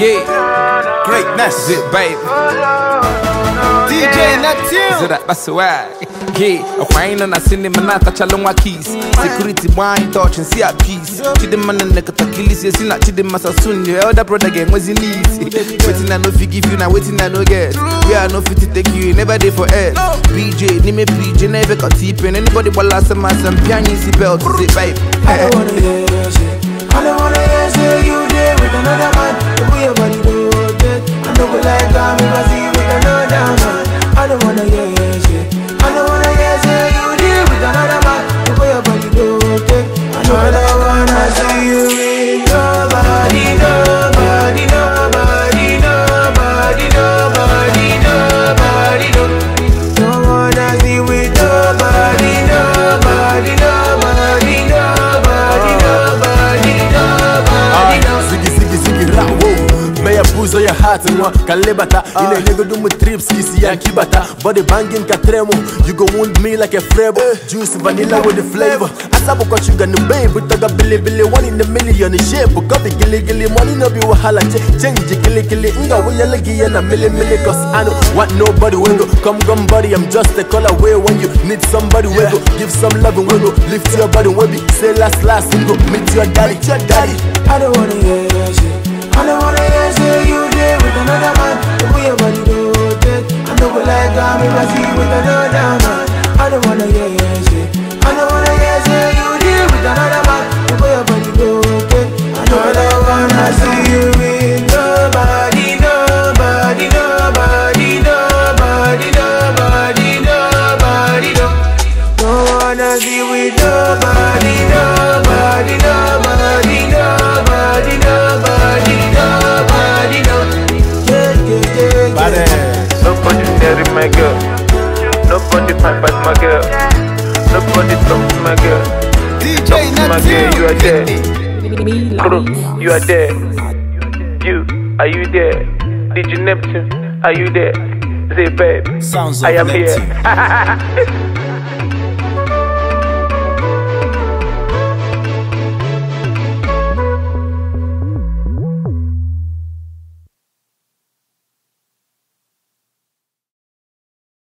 Yeah, greatness, it, baby. DJ Neptune. Zira baswag. Yeah, a wine and a cinema na tachalongwa keys. Security wine touch and see a peace. Chidema na nekatakilisi ya sina chidema soon Your elder brother gang was in easy. Waiting I no you now, waiting I no get. We are no fit take you, never there for air. BJ, name PJ, never got deep Anybody last a some piano, ụzọ ya hat nwa ka nlebata ị ah. na trips isi ya kibata body banging ka tremụ you go wound me like a frebo eh. juice vanilla with the flavor asabụkwa shuga na babe toga bilibili one in a million shape copy giligili money no be wahala change giligili nga wuyele gi ya na milimili cause I know what nobody will go come come buddy I'm just a call away when you need somebody will go give some love and will go lift your body will be say last last go meet your daddy your daddy I don't wanna hear your shit I don't wanna wanna hear you I don't wanna hear say you deal with another man The your body go okay I don't wanna see you with nobody Nobody, nobody, nobody, nobody, nobody, Don't wanna see with nobody, nobody, nobody, nobody, nobody, nobody, Yeah, yeah, yeah, yeah my girl Nobody fight but my girl. Nobody talk to my girl. DJ talk to my girl, you are there. Crew, you are there. You, are you there? DJ Neptune, are you there? Say, babe, Sounds I am here.